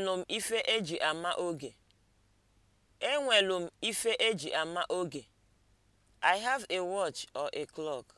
Enwelu ife eji ama oge. Enwelu ife eji ama oge. I have a watch or a clock.